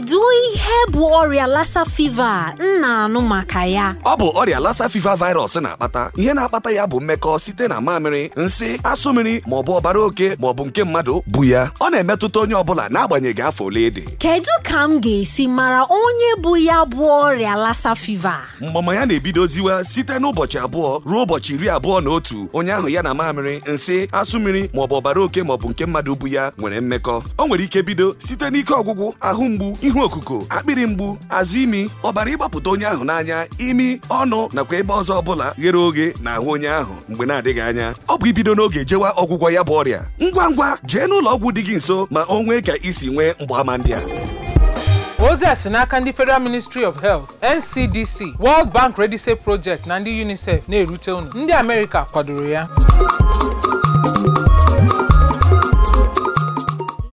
Dewey ihe bụ ọrịa lassa fiva m na-anụ maka ya ọ bụ ọrịa lassa fever virus na-akpata ihe na-akpata ya bụ mmekọ site na mamịrị nsị asụ mmiri maọbụ ọbara oke maọbụ nke mmadụ bụ ya ọ na-emetụta onye ọbụla n'agbanyeghị afọ ole dị kedu ka m ga-esi mara onye bụ ya bụ ọrịa lassa fever? mgbama ya na-ebidoziwa site n'ụbọchị abụọ ruo ụbọchị iri abụọ na otu onye ahụ ya na mamịrị nsị asụ mmiri maọbụ ọbara oke maọbụ nke mmadụ bụ ya nwere mmekọ o nwere ike bido site n'ike ọgwụgwụ ahụ mgbu ihu okuko akpịrị mgbu azụ imi ọbara ịgbapụta onye ahụ n'anya imi ọnụ nakwa ebe ọzọ ọbụla ghere oghe na ahụ onye ahụ mgbe na-adịghị anya ọ bụ ibido n'oge jewa ọgwụgwọ ya bụ ọrịa ngwa ngwa jee n'ụlọ ọgwụ dị gị nso ma o nwee ka isi nwee mgbaàmà ndị a ozi a si n'aka ndị federal ministry of health ncdc world bank redise project na ndị unicef na-erute unu ndị amerịka kwadoro ya